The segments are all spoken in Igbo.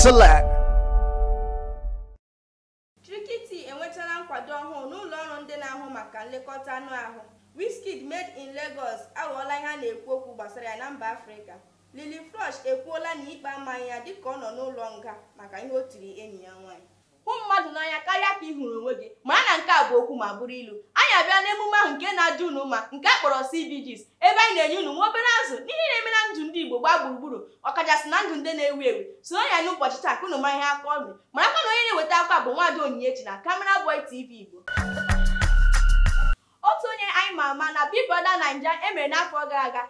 Select. Trikiti enwetala nkwado ọhụụ n'ụlọ ọrụ ndị na-ahụ maka nlekọta anụ ahụ wiskid made in Lagos aghọọla ihe a na-ekwu okwu gbasara ya na mba Afrịka lili Flush ekwuola na ikpe amaghị ya dịka ọ nọ n'ụlọ nga maka ihe o tiri enyi ya nwaanyị hụ mmadụ n'anya karịa ka ị hụrụ onwe gị ma na nke a bụ okwu ma bụrụ ilu anyị abịa n'emume ahụ nke na-adị unu mma nke kpọrọ CBGs ebe anyị na-enye unu nwa obere azụ n'ihe na-eme na gbaa gburugburu ọkachasị na ndụ ndị na-ewu ewu so ya n'ụbọchị taa ka unu mara ihe aka ọnụ mara aka na onye na-eweta akwa bụ nwaada Onyinyechi na kamera Boy TV Igbo otu onye anyị ma ama na Big Brother Naija emere n'afọ gara aga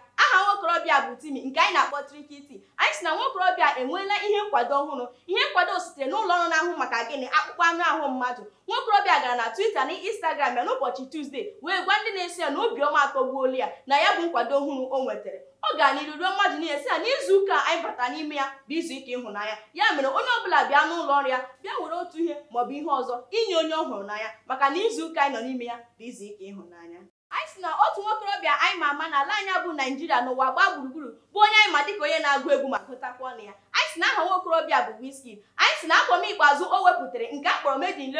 nwokorobịa bụ timi nke anyị na-akpọ trikiti anyị si na nwaokorobịa enweela ihe nkwado ọhụrụ ihe nkwado sitere n'ụlọ ọrụ na-ahụ maka gịnị akpụkpọ anụ ahụ mmadụ nwaokorobịa gara na Twitter na Instagram ya n'ụbọchị Tuzdee wee gwa ndị na-eso ya na Obiọma atọgbuola ya na ya bụ nkwado ọhụrụ o nwetara ọ gara n'iru ruo mmadụ niile sị na n'izu ụka anyị bata n'ime ya bụ izu ike ịhụnanya ya mere onye ọ bụla bịa n'ụlọ ọrụ ya bịa were otu ihe maọbụ ihe ọzọ inye onye ọ hụrụ n'anya maka na izu ụka anyị nọ n'ime ya bụ izu ike ịhụnanya anyị si na otu nwokorobịa ama na ala anya bụ naijiria n'ụwa gbaa gburugburu bụ onye anyị ma dịka onye na-agụ egwu ma gụtakwa ọnụ ya anyị si na aha nwa okorobịa bụ Wizkid anyị si na akwọ m ikpeazụ o wepụtara nke a kpọrọ Made in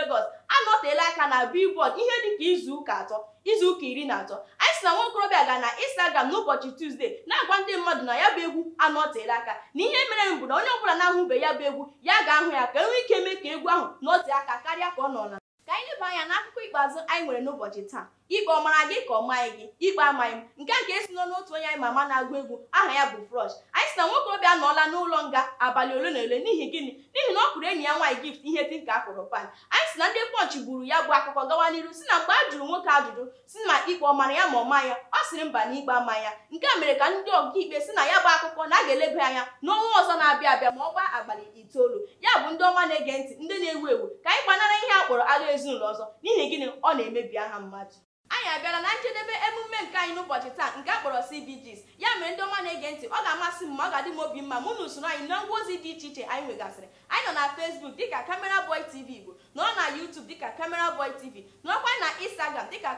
anọteela aka na Billboard ihe dịka izu ụka atọ izuụka iri na atọ anyị si na nwa ga na Instagram n'ụbọchị Tuesday na-agwa ndị mmadụ na ya bụ egwu anọteela aka na ihe mere m bụ na onye ọbụla na ahụbe ya bụ egwu ya ga-ahụ ya ka enwee ike mee ka egwu ahụ nọtee aka karịa ka ọ nọ na ka anyị leba anya n'akụkọ ikpeazụ anyị nwere n'ụbọchị taa ikpe ọmara gị ka ọ maghị gị ikpe amaghị m nke a nke esi n'ọnụ n'otu onye anyị ma ama na-agụ egwu aha ya bụ Frosh anyị sị na obi anọọla n'ụlọ nga abalị ole na ole n'ihi gịnị n'ihi na ọ kụrụ enyi ya nwaanyị gift ihe dị ka akụrụ pan anyị si na ndị pọnchị gburu ya bụ akụkọ gawa n'iru si na mgbe a jụrụ nwoke ajụjụ si na ikpe ọ ya ma ọ ya ọ sịrị mba na ikpe ama ya nke a mere ka ndị ọkaikpe si na ya bụ akụkọ na a ga-eleba anya n'ọnwa ọzọ na-abịa abịa ma ọ gbaa abalị itoolu bụ ndị ọma na-ege ntị ndị na-ewu ewu ka anyị gbanara ihe a kpọrọ agha ezinụlọ ọzọ n'ihi gịnị ọ na-emebi aha mmadụ anyị abịala na njedebe emume nke anyị n'ụbọchị taa nke a kpọrọ CBGs ya mere ndị ọma na-ege ntị ọ ga-amasị m ma ọ ga-adị m obi mma mụ na usoro anyị na ngwa ozi dị iche iche anyị nwegasịrị anyị nọ na fesbuk dịka kamera Boy TV Igbo nọọ na yutub dịka Camera Boy TV nọọkwa na Instagram dịka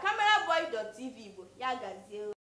tv Igbo ya gazie